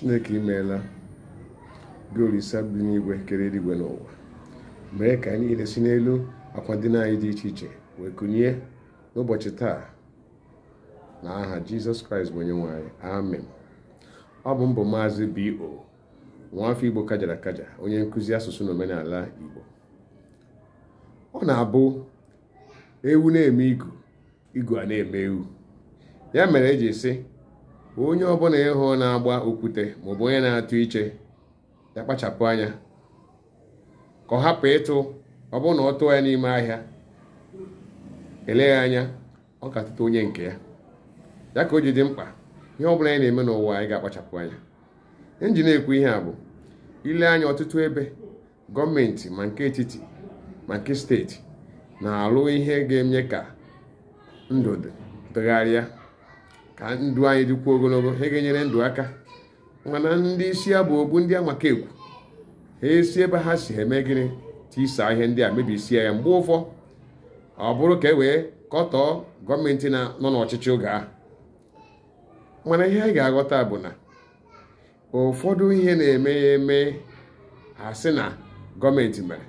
chineke imeela gị olise dị n'igwe kere eluigwe n'ụwa mee ka anyị niile si n'elu akwa dị anyị dị iche iche wee kụnye n'ụbọchị taa na aha jizọs kraịst bụ onye nwanyị amen ọ bụ mbụ maazị bo nwaafọ igbo kajara kaja onye nkụzi asụsụ na omenala igbo ọ na-abụ ewu na-eme igu igu a na-eme ewu ya mere eji si onye ọbụla ịhụ na-agba okwute maọbụ onye na-atụ iche ya kpachapụ anya ka ọ hapụ ịtụ ọ bụrụ na ọ tụọ ya n'ime ahịa eleghị anya ọ ga-atụta onye nke ya ya ka o ji dị mkpa ihe ọ bụla anyị na-eme n'ụwa anyị ga-akpachapụ anya inji na-ekwu ihe a bụ ile anya ọtụtụ ebe gọọmenti ma nke etiti ma nke steeti na-alụ ihe ga enye ka ndụ dịgharịa ka ndụ anyị dịkwuo ogologo ha ga-enyere ndụ aka mana ndị isi ya bụ ogbu ndị amaka ekwu ha esi ebe ha si eme gịnị tisaa ihe ndị a mebisie ya mgbe ụfọ ọ bụrụ ka e wee kọtọọ gọọmenti nọ n'ọchịchị oge ahụ mana ihe anyị ga-aghọta bụ na ụfọdụ ihe na-eme ya eme ha sị na gọọmenti mere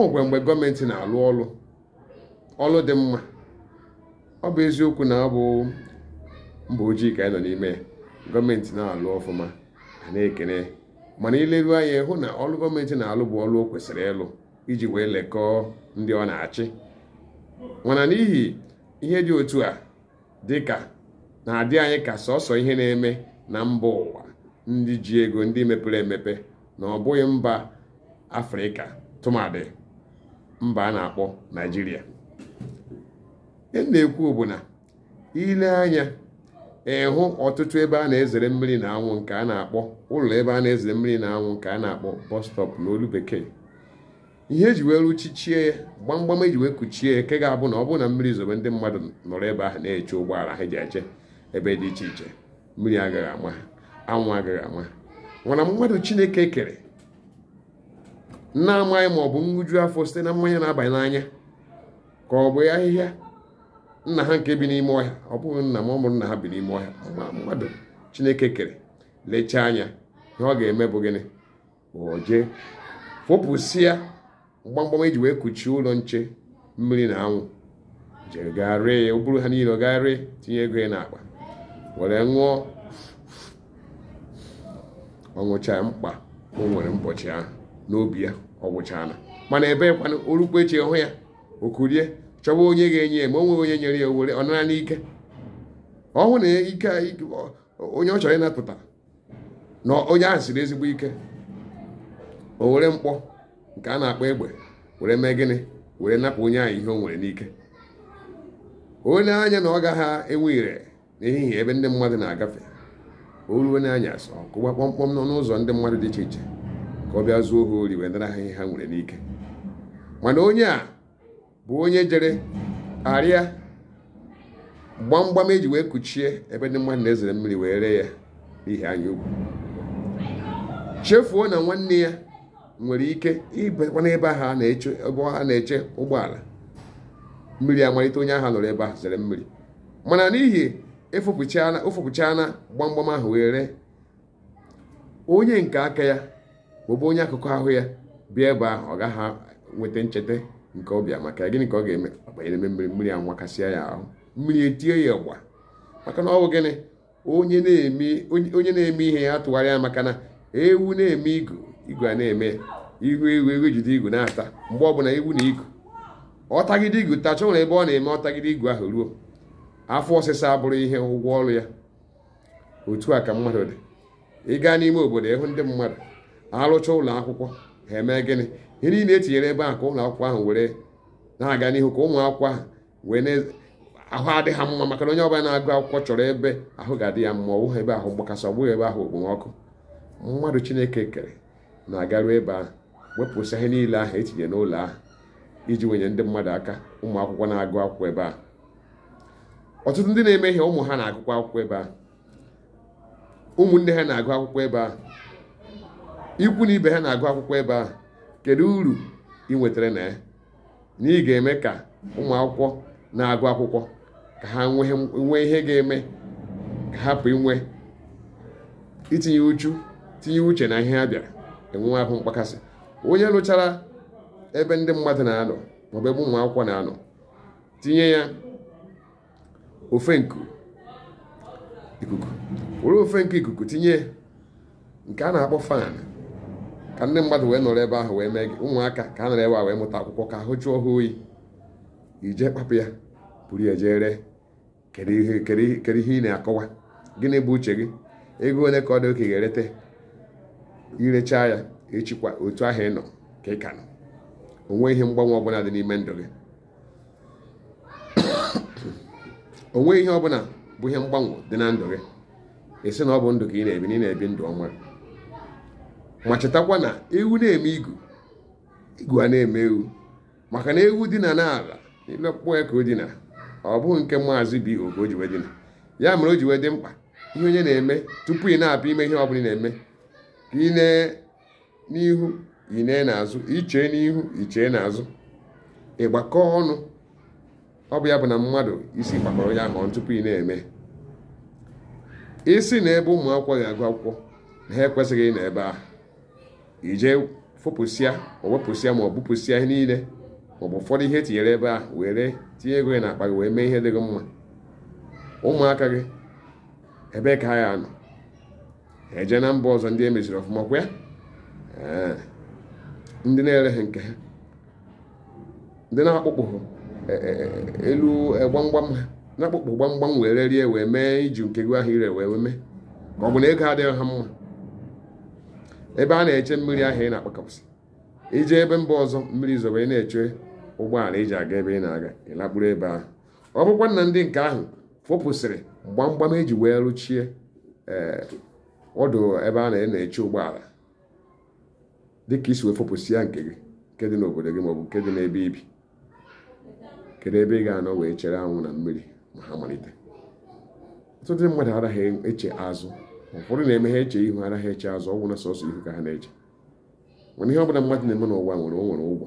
ogwe mgbe gọọmenti na-alụ ọlụ ọlụ dị mma ọ bụ eziokwu na ọ bụ mba ojii ka anyị nọ n'ime gọọmenti na-alụ ọfụma a na-ekene mana ileruo anya hụ na ọrụ gọọmenti na-alụ bụ ọrụ o kwesịrị ịlụ iji wee lekọọ ndị ọ na-achị mana n'ihi ihe dị otu a dịka na-adị anyị ka sọsọ ihe na-eme na mba ụwa ndị ji ego ndị mepere emepe na ọ bụghị mba afrịka tụmadị mba a na-akpọ naijiria ihe na-ekwu bụ na ile anya ịhụ ọtụtụ ebe a na-ezere mmiri na anwụ nke a na-akpọ ụlọ ebe a na-ezere mmiri na anwụ nke a na-akpọ bus na n'olu bekee ihe eji wee ruchichie ya gbamgbam eji wee kuchie ke ga-abụ na ọ bụrụ na mmiri zobe ndị mmadụ nọrọ ebe ahụ na-eche ụgbọala ha ji eche ebe dị iche iche mmiri agaghị ama anwụ agaghị ama ha nwara mmadụ chineke kere na-amaghị ma ọ bụ nhụju afọ site na mmanya na-abanye n'anya ka ọ bụ ahịhịa nna ha nke bi n'ime ọhịa ọ bụghị nna m ọ nna ha bi n'ime ọhịa mmadụ chineke kere lechaa anya ihe ọ ga-eme bụ gịnị oje fopụsịa mgbamgbam eji wee kuchie ụlọ nche mmiri na anwụ jiri gaa ree ya bụrụ ha niile ọ gaa ree tinye ego ya n'akpa were ṅụọ ọ mkpa o nwere ụbọchị ahụ n'obi ya ọ na mana ebe kwana orukwa eche hụ ya o kurie chọwa onye ga-enye ya ma onwe onye nyere ya ọ nara n'ike ọ hụ na ike onye ọ chọrọ ịnapụta na onye ahụ siri ezigbo ike o were mkpọ nke a na-akpọ egbe were mee gịnị were napụ onye ahụ ihe o nwere n'ike onye anya na ọ gaghị enwe ire n'ehihie ebe ndị mmadụ na-agafe o ruo n'anya asọ kụwa kpọmkpọm nọ n'ụzọ ndị mmadụ dị iche iche ka ọ bịa zuo ha ori wee nara ha ihe ha nwere n'ike mana onye a bụ onye jere arịa gbamgbam eji wee kuchie ebe ndị mmadụ na-ezere mmiri wee ree ya n'ihi anya chefuo na nwanne ya nwere ike ibekwa n'ebe ahụ a na-eche ebe a na-eche ụgbọala mmiri amalite onye ahụ nọrọ ebe ahụ zere mmiri mana n'ihi efopụchana gbamgbam ahụ wee ree onye nke aka ya maọbụ onye akụkụ ahụ ya bịa ebe ahụ ọ gaghị nweta ncheta nke ọbịa maka gịnị ka ọ ga-eme ọgbanyere mmiri mmiri a nwakasịa ya ahụ mmiri etie ya ụgba maka na ọ bụ gịnị onye na-eme ihe ya tụgharịa ya maka na ewu na-eme igu igu a na-eme ihu ewu ewu jide igu na-ata mgbe ọbụla ewu na igu ọtagide igu tacha nwere ebe ọ na-eme ọtagide igu ahụ ruo afọ ọsịsa abụrụ ihe ụgwọ ọrụ ya otu a ka mmadụ dị gaa n'ime obodo ịhụ ndị mmadụ arụcha ụlọ akwụkwọ ha eme gịnị ihe niile etinyere ebe a ka ụlọ akwụkwọ ahụ were na-aga n'ihu ka ụmụ akwụkwọ ahụ wee ahụ adịghị mma maka na onye ọbụla na-agụ akwụkwọ chọrọ ebe ahụ ga-adị ya mma ọbụghị ebe ahụ mgbakasị ọbụghị ebe ahụ okpomọkụ mmadụ chineke kere na-agaru ebe ahụ wepụsị ihe niile ahụ etinye n'ụlọ ahụ iji wenye ndị mmadụ aka ụmụ akwụkwọ na-agụ akwụkwọ ebe ahụ ọtụtụ ndị na ihe ụmụ ha na-agụkwa akwụkwọ ebe ahụ ụmụnne ha na-agụ akwụkwọ ebe ahụ ikwu na ibe ha na-agụ akwụkwọ ebe ahụ kedu uru ị nwetara na ya na ị ga-eme ka ụmụakwụkwọ na-agụ akwụkwọ ka ha nwee ihe ga-eme ka hapụ inwe itinye uche na ihe ha bịara enwe ahụ mkpakasị onye lụchara ebe ndị mmadụ na-anọ maọbụ ebe na-anọ tinye ya ofe ikuku were ofe nke ikuku tinye nke a na-akpọ fan ka ndị mmadụ wee nọrọ ebe ahụ wee mee gị ụmụaka ka a nọrọ ebe a wee mụta akwụkwọ ka ahụ jụọ ha oyi ije kpapụ ya buru ya jee ree kedu ihe ihe ị na-akọwa gịnị bụ uche gị ego one ka ọ dị oke ga-erete irechaa ya echikwa otu ahụ ị nọ ka ị ka nọ onwe ihe mgbanwe ọbụla dị n'ime ndụ gị onwe ihe ọbụla bụ ihe mgbanwe dị na ndụ gị ị sị na ọ bụ ndụ ka ị na-ebi na ị na-ebi ndụ ọma ma chetakwa na ewu na-eme igu igu a na-eme ewu maka na ewu dina n'ala n'elu ọkpụkpọ ya ka o dina ọ bụghị nke maazị bi oge o jiwe dina ya mere o jiwe dị mkpa ihe onye na-eme tupu ị na-apụ ime ihe ọ bụla ị na-eme ka ị nee n'ihu ị nee n'azụ ichee n'ihu ichee n'azụ ịgbakọ ọnụ ọ bụ ya bụ na mmadụ isi gbakọrọ ya ahụ tupu ị na-eme isi na ebe ụmụ akwụkwọ ga-agụ akwụkwọ na ha ekwesịghị ị na ebe ahụ ije fopụsịa owepụsịa ma ọ bụpụsịa ihe niile maọbụ ụfọdụ ihe tinyere ebe a were tinye ego gị akpa gị wee mee ihe dị gị mma ụmụaka gị ebe ka ha ya nọ eje na mba ọzọ ndị e meziri ọfụma kwa ya ndị na-ereghị nke ha ndị na-akpụkpụ e, e, e, elu gbamgbam ha na-akpụkpụ gbamgbam were rie wee mee iji nke gị ahụ ire wee mee ma ọ bụ na ego adịghị ha mma ebe a na-eche mmiri ahụ ị na-akpakọpụsị ije ebe mba ọzọ mmiri zobe ị na-eche ụgbọala iji aga ebe ị na-aga ịlakpụrụ ebe ahụ ọ bụkwa ndị nke ahụ fopụsịrị gbamgbam eji wee rụchie eh, ọdụ ebe a na-eche ụgbọala dịka isi wee fopụsị ya nke gị nke dị n'obodo gị maọbụ nke dị n'ebe ibi kedu ebe ị ga-anọ wee chere anwụ na mmiri ma ha malite ọtụtụ mmadụ anaghị eche azụ ụfọdụ na-eme ha eche ihu anaghị eche azụ ọgwụ na sọsọ ihu ka ha na-eche mana ihe ọbụla mmadụ na-eme n'ụwa nwere nwere ụgwọ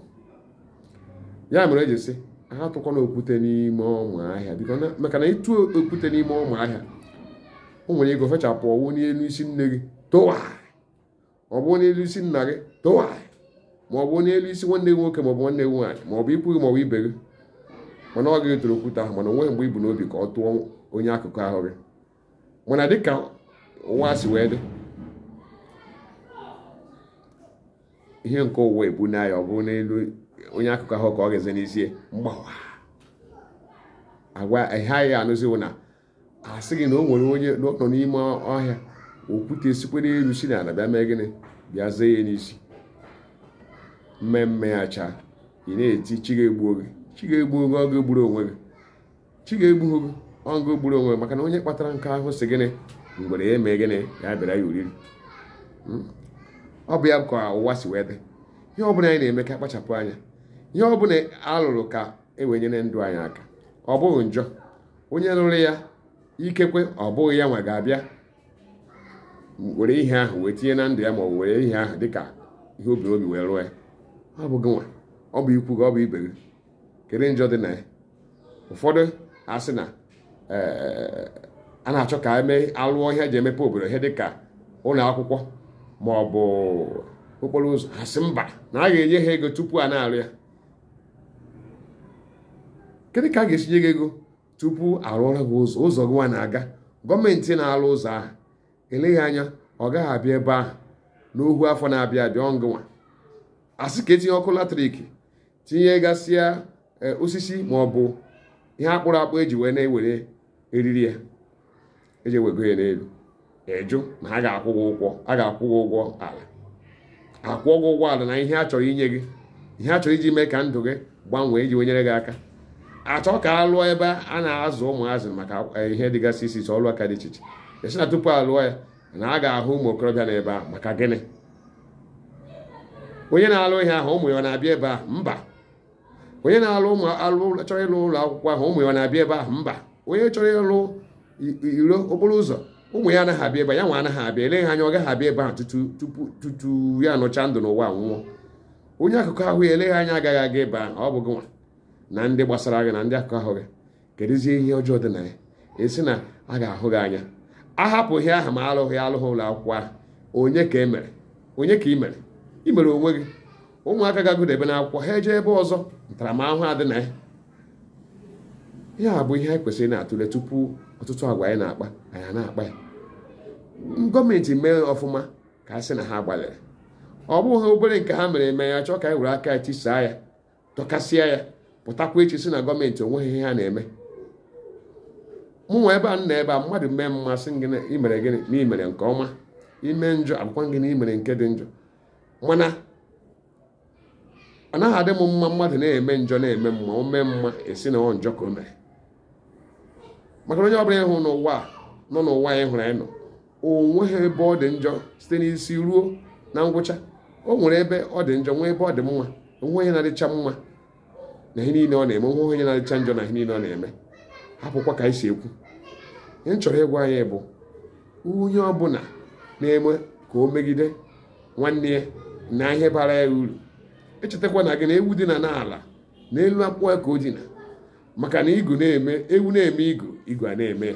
ya mere eji sị ha tụkwana okwute n'ime ọma ahịa biko maka na ịtụ okwute n'ime ọma ahịa o nwere ego fechapụ ọwụ n'elu isi nne gị tụwa ọ bụ n'elu isi nna gị tụwa ma ọ bụ n'elu isi nwanne gị nwoke ma ọ bụ nwanne gị nwaanyị ma ọ bụ ikwu gị ma ọ bụ ibe gị mana ọ gaghị tụrụ okwute ahụ mana onweghị mgbe ibu n'obi ka ọ tụọ onye akụkụ ahụ gị mana dịka ụwa si wee dị ihe nke ụwa ebu ya ọ bụrụ n'elu onye akụkọ ahụ ka ọ ga-eze n'ezie mgbawa agwa ha ya anụziwo na sị gị na o nwere onye nọ n'ime ọhịa okwute sikwere elu si na bịa mee gịnị bịa zee ya n'isi mmemme ya chaa ị na-eti chi ga-egbuo gị chi ga-egbuo gị ọgụ gburu onwe gị chi ga-egbuo gị ọgụ gburu onwe gị maka na onye kpatara nke ahụ si gịnị mgbe ya emee gịnị ya bịara ya oriri hmm? ọ bụ ya ka ụwa si wee dị ihe ọbụla anyị na-eme ka akpachapụ anya ihe ọ bụla alụrụ ka ewenyere ndụ anyị aka ọ bụghị njọ onye lụrụ ya ikekwe ọ bụghị ya nwa ga-abịa were ihe ahụ wee tinye na ndụ ya ma ọ were ihe ahụ ka ihe obi obi wee rụọ ya ọ bụ gị nwa ọ bụ ikwu gị ọ bụ ibe gị kedu njọ dị na ya ụfọdụ asị na eh, a na-achọ ka emee alụọ ihe eji emepe obodo ihe dịka ụlọ akwụkwọ ma ọ bụ okporo ụzọ ha sị mba na a ga-enye ha ego tupu a na-arụ ya kedu ka a ga-esi nye gị ego tupu arụọra gị ụzọ ụzọ gị nwa na-aga gọọmenti na-alụ ụzọ ahụ eleghị anya ọ gaghị abịa ebe ahụ n'ohu afọ na-abịa abịa ọngụnwa asị ka etinye ọkụ latrik tinye gasịa e, osisi ma ọ bụ ihe akpụrụ akpụ eji wee na-ewere eriri ya eji ewego ya n'elu ịjụ ma ha ga-akwụ gị ụgwọ a ga-akwụ gị ụgwọ ala akwụọ gị ụgwọ ala na ihe a chọrọ inye gị ihe a chọrọ iji mee ka ndụ gị gbanwee iji wenyere gị aka achọ ka a lụọ ebe a na-azụ ụmụazụ maka e, ihe dịgasị isi iche ọlụ aka dị iche iche esi na tupu a lụọ ya na a ga-ahụ ụmụ okorobịa na ebe a maka gịnị onye na-alụ ihe ahụ ụmụ ya na-abịa ebe mba onye na-alụ ụmụ alụ chọrọ ịlụ ụlọ akwụkwọ ahụ ụmụ ya na-abịa ebe ahụ mba onye chọrọ ịlụ iro okporo ụzọ ụmụ ya anaghị abịa ebe ya nwa anaghị abịa eleghị anya ọ gaghị abịa ebe ahụ tupu tutu ya anọcha ndụ n'ụwa nwụọ onye akụkọ ahụ ya eleghị anya agaghị aga ebe ahụ ọ gị nwa na ndị gbasara gị na ndị akụkọ ahụ gị kedụzie ihe ọjọọ dị na ya esi na a ga-ahụ gị anya ahapụghị aha ma alụghị alụghị ụlọ akwụkwọ ahụ onye ka emere onye ka ị mere ị mere onwe gị ụmụaka ga-agụdebe n'akwụkwọ ha eje ebe ọzọ ntaramahụhụ adị na ya ya bụ ihe anyị kwesịrị na-atụle tupu ọtụtụ agwa anyị na-akpa anyị na-akpa ya gọọmenti mee ọfụma ka a sị na ha gbalịrị ọ bụghị obere nke ha mere eme ya chọọ ka anyị were aka ya tisaa ya tọkasịa ya pụtakwa echi sị na gọọmenti onweghị ihe ha na-eme mụ nwa ebe a nọ ebe a mmadụ mee mmasị gị na imere gịnị na imere nke ọma ime njọ akwụkwọ gị na imere nke dị njọ mana ọ naghị adị m mma mmadụ na-eme njọ na-eme mma o mma esi na ọ njọ ka o mere maka onye ọbụla ịhụ n'ụwa nọ n'ụwa anyị hụrụ anyị nọ o nweghị ebe ọ dị njọ site n'isi ruo na ngwụcha o nwere ebe ọ dị njọ nwee ebe ọ dị mma onwe onye na-adịcha mma na ihe niile ọ na-eme nwe onye na-adịcha njọ na ihe niile ọ na-eme hapụkwa ka anyị si ekwu ihe m chọrọ ịgwa anyị bụ onye ọbụla na-eme ka o megide nwanne ya na ihe bara ya uru echetakwa na gị na ewu dị na n'ala n'elu akpụkpọ ya ka o dina maka na igu na-eme ewu na-eme igu igu a na-eme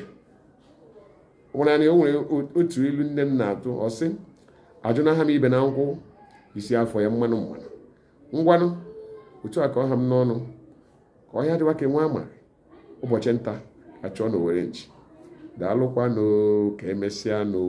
nwere ọ o nwere otu ilu nne m na-atụ ọsị ajụna ha m ibe na nkwụ isi afọ ya mmanụ mmanụ ngwanụ otu a ka ọha m n'ọnụ ka ọhịa dịwa ka e nwa ama ụbọchị nta achọọ na owere nchi daalụkwanụ ka emesịa n'o